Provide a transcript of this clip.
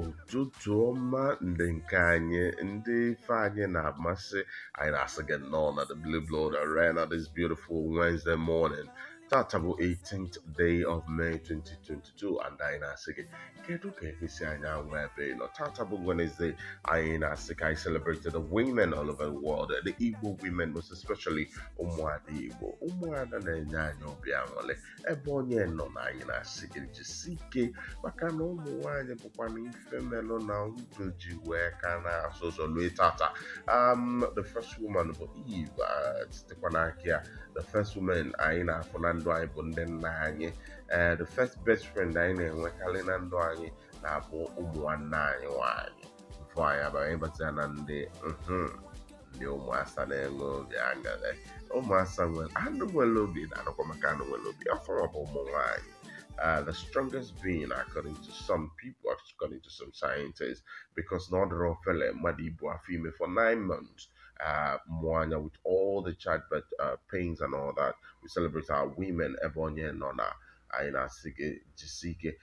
ụtụtụ ọma ndị nke anyị ndị ife anyị na-amasị anyị na-asị gị nnọọ na the blue blood arena this beautiful Wednesday morning that's bu 18th day of May 2022 and anyị na-asị gị kedu ka esi anyị anwa ebe ịnọ tata bụ Wednesday anyị na-asị ka anyị celebrated the women all over the world the Igbo women most especially ụmụada Igbo ụmụada na-enye anyị obi aṅụrị ebe onye nọ na anyị na-asị gị jisi ike maka na ụmụ nwaanyị bụkwa na ife melụ na ndụ ji wee ka na-asụ ụzọ lue tata um the first woman bụ Eve uh, sitekwa n'aka ya the first woman anyị na-afụ na ndụ anyị bụ ndị nna the first best friend anyị na-enwekarị na ndụ anyị na-abụ ụmụ nwanne anyị nwanyị mfụ anyị abara ịbata na ndị ndị ụmụasa na-enwe obi aṅụrị ụmụasa nwere anụ nwere obi na-anụkwa maka anụ nwere obi ọfụrụ bụ ụmụ nwanyị uh, the strongest being according to some people into some scientists because Nodoro Fele Madibu Afime for nine months. Uh, Moana with all the childbirth uh, pains and all that. We celebrate our women, Ebony and Nona. Aina Sige, Jisike,